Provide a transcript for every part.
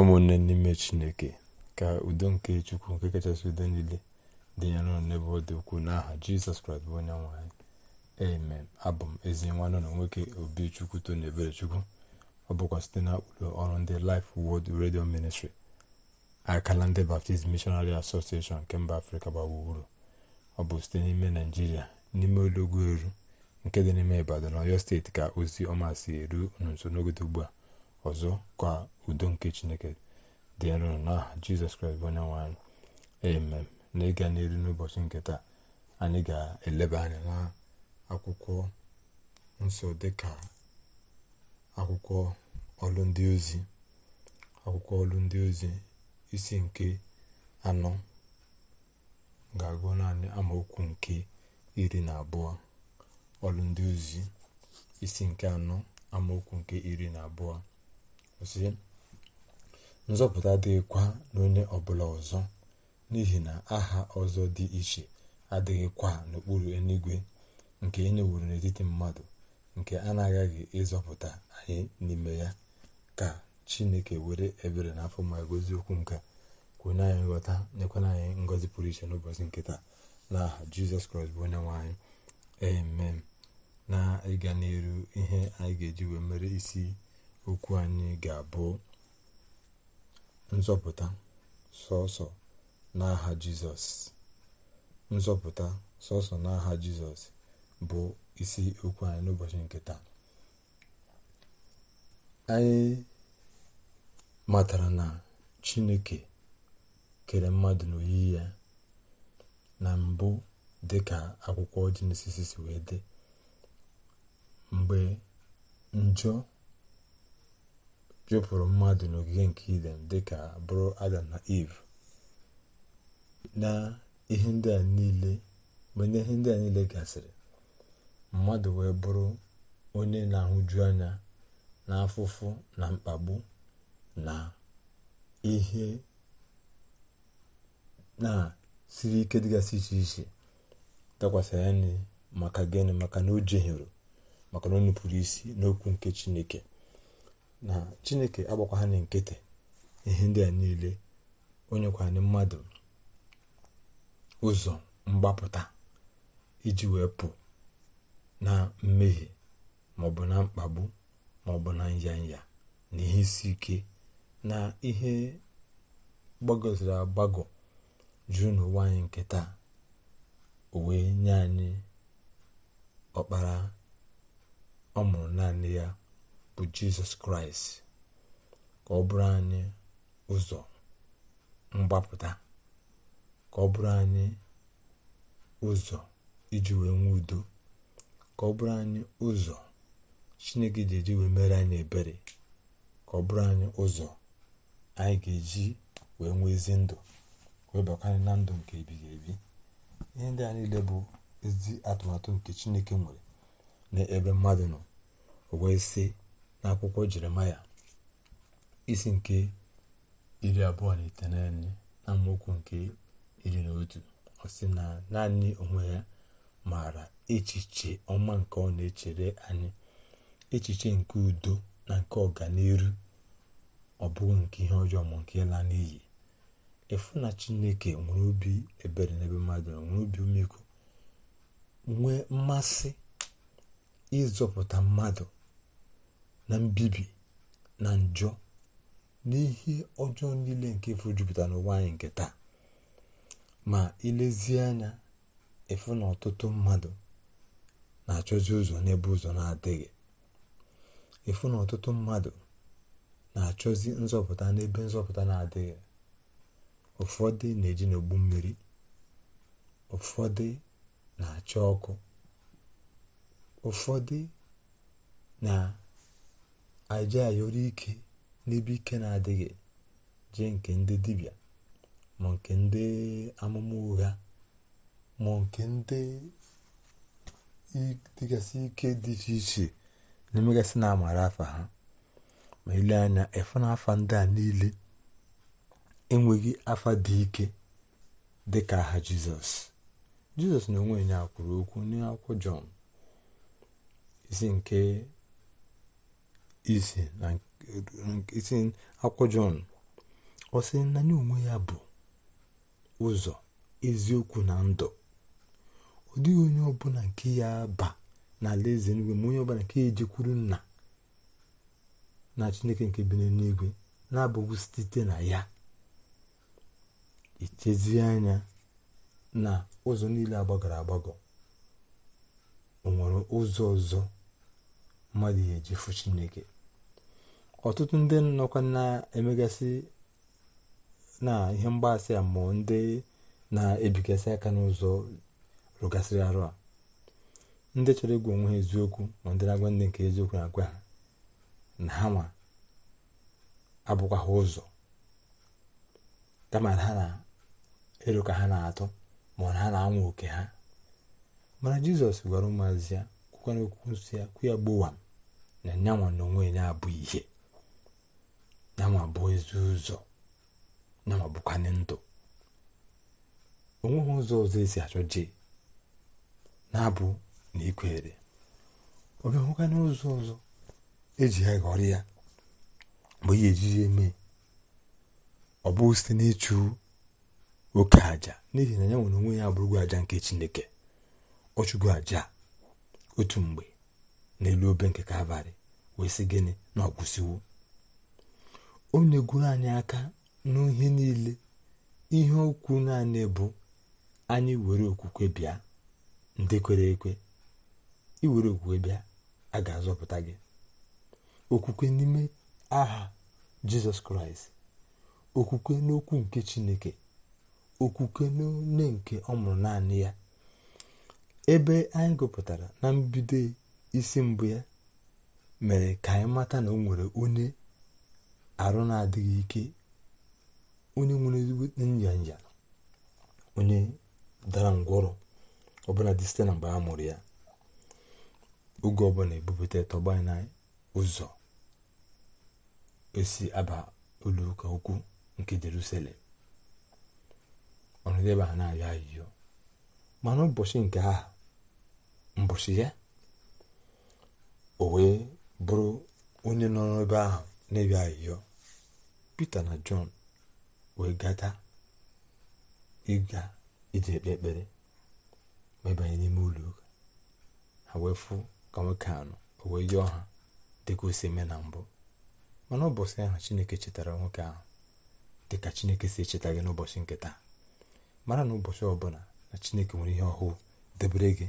ụmụnne n'ime chineke ka udo nke chukwu nke kachasị udo niile dị ya n'ụlọ n'ebe ọ dị ukwuu n'aha jizọs kraịst bụ onye nwe amen abụ m ezi nwanne na nwoke obi chukwu tony chukwu ọ bụkwa site na ọrụ ndị Life Word redio ministri akala ndị Baptist Missionary Association nke mba afrịka gbagburu ọ bụ site n'ime naijiria n'ime ụlọugwu eru nke dị n'ime ibadan ọyọ steeti ka ozi ọma si eru nso n'ogodo ugbu a ọzọ ka udo nke chineke dị nro n'aha jizọs kraịst bụ onye nwe amen na ịga n'elu n'ụbọchị nke taa anyị ga-eleba anya na akwụkwọ nsọ dịka akwụkwọ ọlụ ndị ozi akwụkwọ ọlụ ndị ozi isi nke anọ ga-agụ naanị amaokwu nke iri na abụọ ọlụ ozi isi nke anọ amaokwu nke iri na abụọ sị nzọpụta dịkwa n'onye ọbụla ọzọ n'ihi na aha ọzọ dị iche adịghịkwa n'okpuru eluigwe nke e n'etiti mmadụ nke a na-agaghị ịzọpụta anyị n'ime ya ka chineke were ebere na afọ ma gozi okwu nke kwunye anyị nghọta nyekwana anyị ngọzi pụrụ iche n'ụbọchị nkịta na aha jizọs kraịst bụ onye nwe anyị amen na ịga n'elu ihe anyị ga-eji wee mere isi okwu anyị ga-abụ nzọpụta sọsọ n'aha jizọs nzọpụta sọsọ n'aha jizọs bụ isi okwu anyị n'ụbọchị nke taa anyị matara na chineke kere mmadụ n'oyiyi ya na mbụ dị ka akwụkwọ jenesis wee dị mgbe njọ jupụrụ mmadụ n'ogige nke idem dịka bụrụ adam na eve na ihe ndị a niile mgbe ihe ndị a niile gasịrị mmadụ wee bụrụ onye na-ahụju anya na afụfụ na mkpagbu na ihe na-siri ike dịgasị iche iche dakwasị ya maka gịnị maka na o jehiere maka na o isi n'okwu nke chineke na chineke agbakwa nkịtị ihe ndị a niile onye anyị mmadụ ụzọ mgbapụta iji wee pụ na mmehie maọbụ na mkpagbu maọbụ na nyanya na ihe isi ike na ihe gbagoziri agbagọ jụụ n'ụwa anyị nke taa o wee nye anyị ọkpara ọ mụrụ naanị ya bụ jizọs kraịst ka ọ bụrụ anyị ụzọ mgbapụta ka ọ bụrụ anyị ụzọ iji wee nwee udo ka ọ bụrụ anyị ụzọ chineke ji eji wee mere anyị ebere ka ọ bụrụ anyị ụzọ anyị ga-eji wee nwee ezi ndụ wee bakanye na ndụ nke ebighị ebi ihe ndị a niile bụ ezi atụmatụ nke chineke nwere n'ebe mmadụ nọ wee sị n'akwụkwọ jeremaya isi nke iri abụọ na iteghete na mokwu nke iri na otu ọ sị na naanị onwe ya maara echiche ọma nke ọ na-echere anyị echiche nke udo na nke ọganiru ọ bụghị nke ihe ọjọọ ma nke ịla n'iyi efu na chineke nwere obi ebere n'ebe mmadụ nwere obi umekwu nwee mmasị ịzọpụta mmadụ na mbibi na njọ na ihe ọjọọ niile nke efu jupụtara n'ụwa anyị nke taa ma ilezie anya efu na ọtụtụ mmadụ na-achọzi ụzọ n'ebe ụzọ na-adịghị efu na ọtụtụ mmadụ na-achọzi nzọpụta n'ebe nzọpụta na-adịghị ụfọdụ na-eji n'ogbu mmiri ụfọdụ na-achọ ọkụ ụfọdụ na anyị jee ike n'ebe ike na-adịghị jee nke ndị dibịa ma nke ndị amụma ụgha ma nke ndị dịgasị ike dị iche iche na-emegasị na amara afa ha ma ile anya efu na afa ndị a niile enweghị afa dị ike dị ka aha jizọs jizọs na onwe ya kwuru okwu n'akwụkwọ jọn isi nke isi na isi akwụkwọ jọn ọ sị na ya onwe ya bụ ụzọ eziokwu na ndụ ọ dịghị onye ọbụla nke ya ba n'ala eze nigwe ma onye ọbụla nke ya ejekwuru nna na chineke nke bi n'eluigwe na-abụghị site na ya ichezie anya na ụzọ niile agbagọrọ agbagọ o nwere ụzọ ọzọ mmadụ ya ejefu chineke ọtụtụ ndị nọkwa na-emegasị na ihe mgbasị a ndị na-ebigasị aka n'ụzọ rụgasịrị arụ a ndị chọrọ ịgwa onwe ha eziokwu ma ndị na-agwa ndị nke eziokwu na-agwa ha na ha ma abụkwa ha ụzọ kama ha na elu ka ha na-atụ ma na ha na-anwụ oke ha mana jizọs gwara ụmụazị ya kwukwana okwu nsọ ya kwụ ya gbowa na nyanwa na onwe ya bụ ihe yanwa bụ ezi ụzọ yanwa bụkwanye ndụ o nweghị ụzọ ọzọ esi achọ jee na-abụ na ikwere ọ bịahụkanye ụzọ ọzọ eji ya ghọrọ ya mgbe ya ejiji eme ọ bụ site n'ịchụ oke aja n'ihi na ya nwere onwe ya abụrụgo aja nke chineke ọ chụgo aja otu mgbe n'elu obe nke ka wee sị gịnị na ọ kwụsịwo onye gwuru anyị aka n'ihe niile ihe okwu naanị bụ anyị were okwukwe bịa ndị kwere ekwe iwere okwukwe bịa a ga-azọpụta gị okwukwe n'ime aha jizọs kraịst okwukwe n'okwu nke chineke okwukwe n'one nke ọ mụrụ naanị ya ebe anyị gụpụtara na mbido isi mbụ ya mere ka anyị mata na o nwere onye arụ na-adịghị ike onye nwere ezigbo nyanja onye dara ngwọrọ ọbụla dị site na mgbe a mụrụ ya oge ọbụla ebupụta tọgba na ụzọ esi aba ụlọ ụka ukwu nke jerusalem ebe a na-ayọ ayịyọ mana ụbọchị nke a mbọchị ya o wee bụrụ onye nọ n'ebe ahụ n'ebe ayịyọ Pita na Jọn wee gata ịga iji ekpe ekpere ma ịbanye n'ime ụlọ ụka ha wee fụ ka nwoke anọ o wee yọọ ha dịka o si eme na mbụ mana ụbọchị ahụ Chineke chetara nwoke ahụ dịka Chineke si echeta gị n'ụbọchị nke taa mara na ụbọchị ọbụla na Chineke nwere ihe ọhụụ debere gị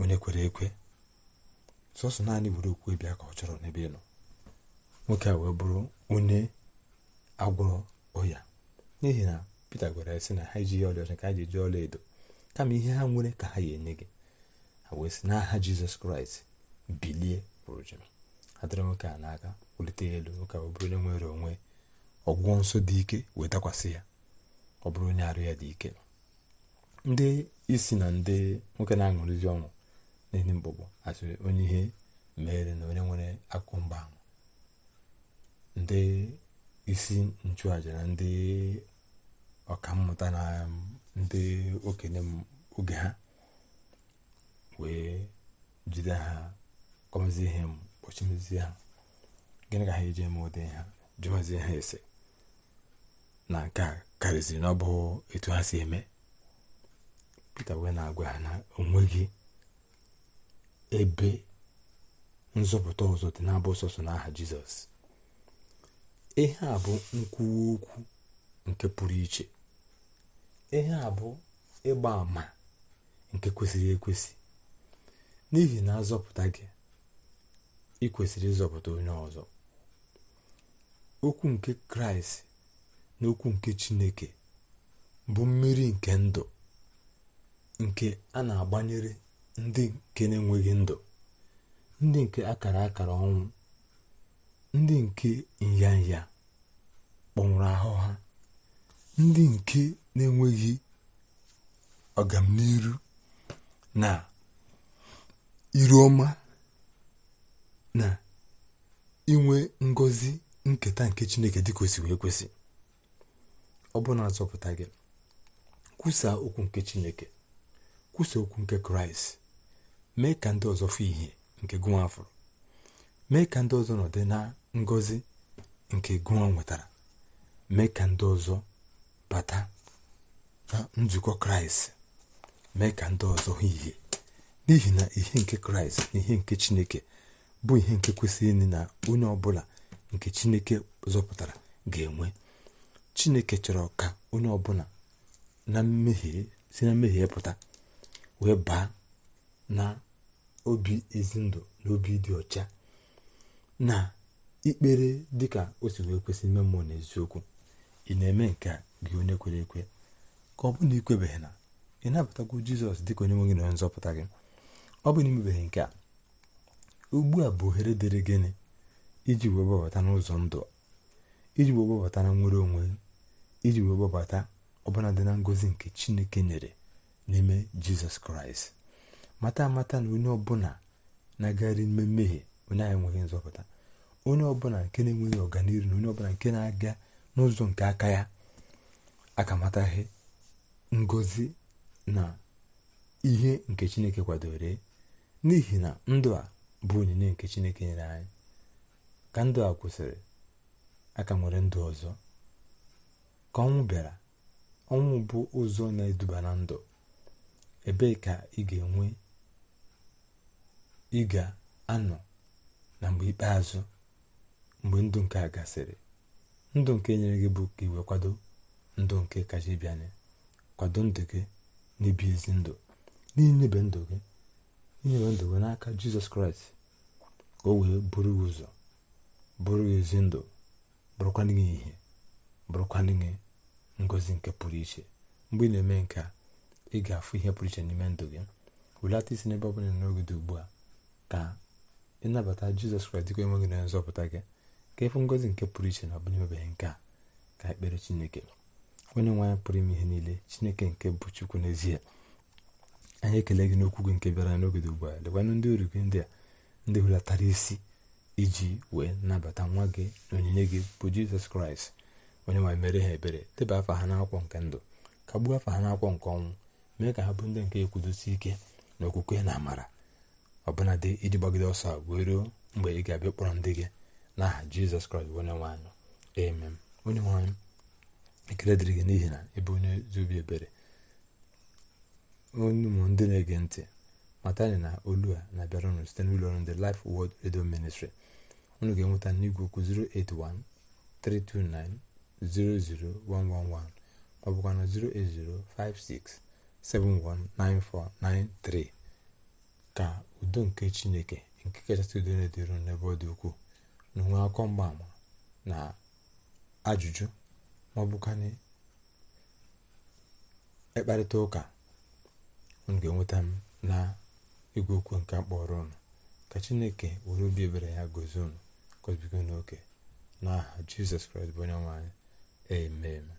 onye kwere ekwe sọsọ naanị were okwu bịa ka ọ chọrọ n'ebe ị nọ nwoke a wee bụrụ onye agwọrọ ọya n'ihi na pete gwara ya sị na ha ejighị ọcha ka ha ji eji ọla edo kama ihe ha nwere ka ha ya enye gị ha wee sị n'aha jizọs kraịst bilie pụrụ adịrị nwoke a n'aka wulite elu nwoke a wee bụrụ onye nwere onwe ọgwụgwọ nsọ dị ike wee dakwasị ya ọ bụrụ onye arụ ya dị ike ndị isi na ndị nwoke na-aṅụrịzi ọṅụ n'ihi mgbọgbọ asịrị onye ihe mere na onye nwere akụ mba ahụ ndị isi nchụàja na ndị ọkammụta na ndị okenye oge ha wee jide ha kọmezie ihe kpọchimezie ha gịnị ka ha eji eme ụdị ha jụmazie ha ese na nke a karịziri na ọ bụ etu ha si eme pita wee na-agwa ha na onweghị ebe nzọpụta ọzọ dị na-abụ sọsọ n'aha jizọs ihe a bụ nkwuwa okwu nke pụrụ iche ihe a bụ ịgba àmà nke kwesịrị ekwesị n'ihi na azọpụta gị ị kwesịrị ịzọpụta onye ọzọ okwu nke kraịst na okwu nke chineke bụ mmiri nke ndụ nke a na-agbanyere ndị nke na-enweghị ndụ ndị nke akara akara ọnwụ ndị nke nyanya kpọnwụrụ ahụ ha ndị nke na-enweghị ọganiru na iru ọma na inwe ngọzi nketa nke chineke dị kwesị wee kwesị ọ bụ azọpụta gị kwusa okwu nke chineke kwusa okwu nke kraịst mee ka ndị ọzọ fụ ihe nke afọ mee ka ndị ọzọ nọdị na ngozi nke gụọ nwetara mee ka ndị ọzọ bata na nzukọ kraịst mee ka ndị ọzọ hụ ihe n'ihi na ihe nke kraịst na ihe nke chineke bụ ihe nke kwesịrị ịnị na onye ọbụla nke chineke zọpụtara ga-enwe chineke chọrọ ka onye ọbụla na mmehie si na mmehie pụta wee baa na obi ezi ndụ na obi dị ọcha na ikpere dịka o si wee kwesị ime mmụọ n'eziokwu ị na-eme nke a gị onye kwere ekwe ka ọ bụrụ na ikwebeghị na ị nabatagwo jizọs dịka onye nwe gị na onye nzọpụta gị ọ bụ na imebeghị nke a ugbu a bụ ohere dịrị gịnị iji wee gbabata n'ụzọ ndụ iji wee gbabata na nwere onwe iji wee gbabata ọbụla dị na ngozi nke chineke nyere n'ime jizọs kraịst mata amata na onye ọbụla na-agagharị n'ime mmehie onye anyị enweghị nzọpụta onye ọbụla nke na-enweghị ọganihu na onye ọbụla nke na-aga n'ụzọ nke aka ya akamataghị ngozi na ihe nke chineke kwadoro n'ihi na ndụ a bụ onyinye nke chineke nyere anyị ka ndụ a kwụsịrị aka nwere ndụ ọzọ ka ọnwụ bịara ọnwụ bụ ụzọ na-eduba na ndụ ebee ka ị ga-enwe ị ga-anọ na mgbe ikpeazụ mgbe ndụ nke a gasịrị ndụ nke nyere gị bụ ka iwe kwado ndụ nke kacha ịbịanye kwado ndụ gị n'ibi ezi ndụ n'inyebe ndụ gị inyebe ndụ gị n'aka jizọs kraịst ka o wee bụrụ gị ụzọ bụrụ gị ezi ndụ bụrụkwanụ gị ihe bụrụkwanụ gị ngozi nke pụrụ iche mgbe ị na-eme nke a ị ga-afụ ihe pụrụ iche n'ime ndụ gị welata isi n'ebe ọ bụla n'oge dị ugbu a ka ịnabata jizọs kraịst dịka enwe gị na nzọpụta gị ka ịfụ ngozi nke pụrụ iche na ọbụnyebeghị nke a ka ekpere chineke onye nwe anyị pụrụ ime ihe niile chineke nke bụ chukwu n'ezie anyị ekele gị n'okwu gị nke bịara n'ogede ugbu a lekwanụ ndị ori gị ndị a ndị hulatara isi iji wee nabata nwa gị na onyinye gị bụ jizọs kraịst onye nwe mere ha ebere deba afa ha n'akwụkwọ nke ndụ ka gbuo afa ha n'akwụkwọ nke ọnwụ mee ka ha bụ ndị nke ekwudosi ike na okwukwe na amara ọbụnadị iji gbagide ọsọ a wee ruo mgbe ị ga-abịa kpọrọ ndị gị n'aha jizọs kraịst bụ onye nwaanyị amen onye nwaanyị ekele dịrị gị n'ihi na ebe onye ezi obi ebere onye ụmụ ndị na-ege ntị matani na olu a na-abịara unu site n'ụlọ ọrụ ndị Life Word Radio Ministry unu ga-enweta n'igwe okwu 08132900111 ma ọ bụkwa na 08056719493 ka udo nke Chineke nke kachasị udo na-edịru n'ebe ọ dị ukwuu na onwe akọ mgbaama na ajụjụ ma ọ na ịkparịta ụka unu ga-enweta m na igwe okwu nke akpọrọ ụnụ ka chineke were obi ebere ya gozie unu gozibigo n'oke n'aha jizọs kraịst bụ onye nwanyị eme eme.